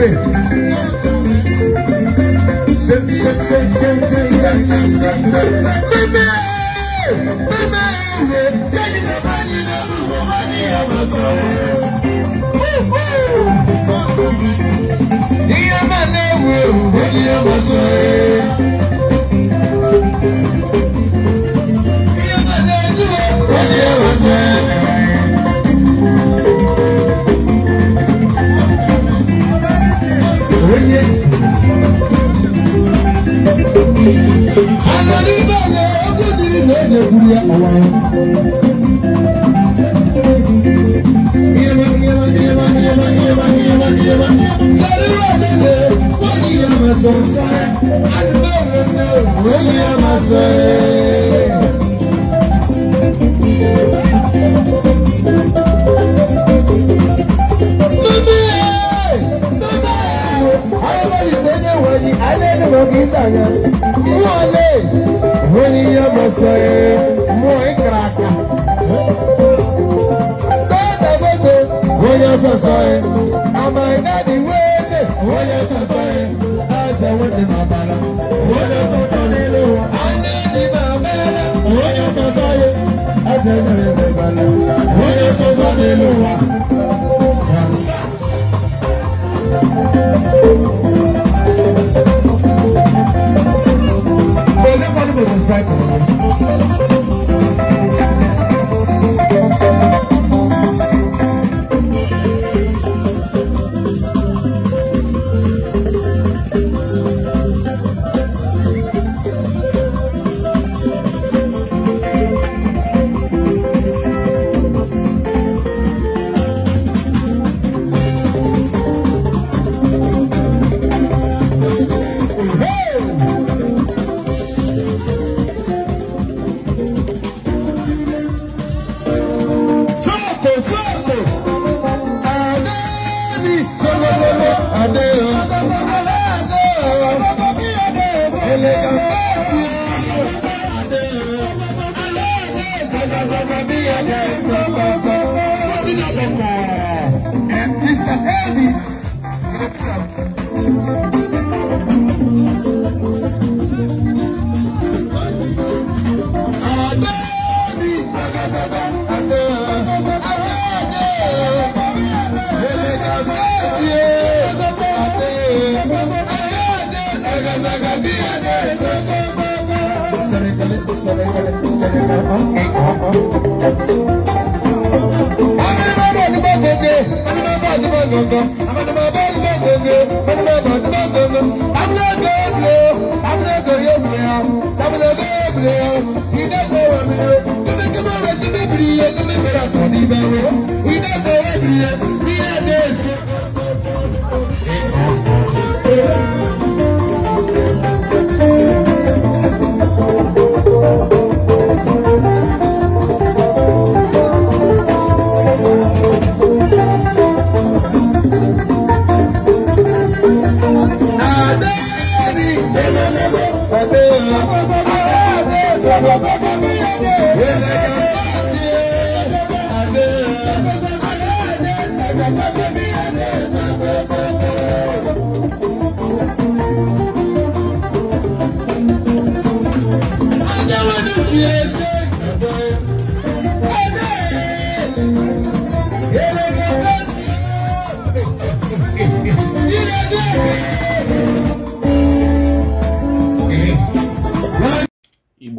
pè. ṣe ṣe ṣe ṣe ṣe ṣe ṣe ṣe ṣe. bíbí bíbí ìwé jẹ́ni sábà ní lọ́rùn mo máa ní ọmọ sọ̀rọ̀. ìyá máa léwu òwò ní ọmọ sọ̀rọ̀. Anani bale ebudiri na ede buru ya ọwa ya. Yaba yaba yaba yaba yaba yaba yaba. Sari wale de wani ya maso sare. Alibere de wani ya maso ye. mose muy crack dada boko onye sosoe amainadi weze onye sosoe ase wete n'ọbara onye soso n'elu ụwa anya ndị ma mere Thank you. sóògùn adé ni sọgbọgbọgbọ adé o adé o elega bẹẹsì adé o adé sọgbọgbọgbọ bí adé sọgbọgbọgbọ ó ti lọ bọ̀ ẹ̀ Mr. Elvis. Adé ni sọgbọgbọgbọ. zaga zaga biya ne zaga zaga. Sare kale sare kale sare kale. Amina baba liba goge, amina baba liba gogo, amina baba liba goge, amina baba liba gogo. Amina goble, amina goye goya, amina goble, ina goye goya. Kumi kumi ra kumi briye, kumi ra kumi briye, ina goye briye, briye desu. Yeah.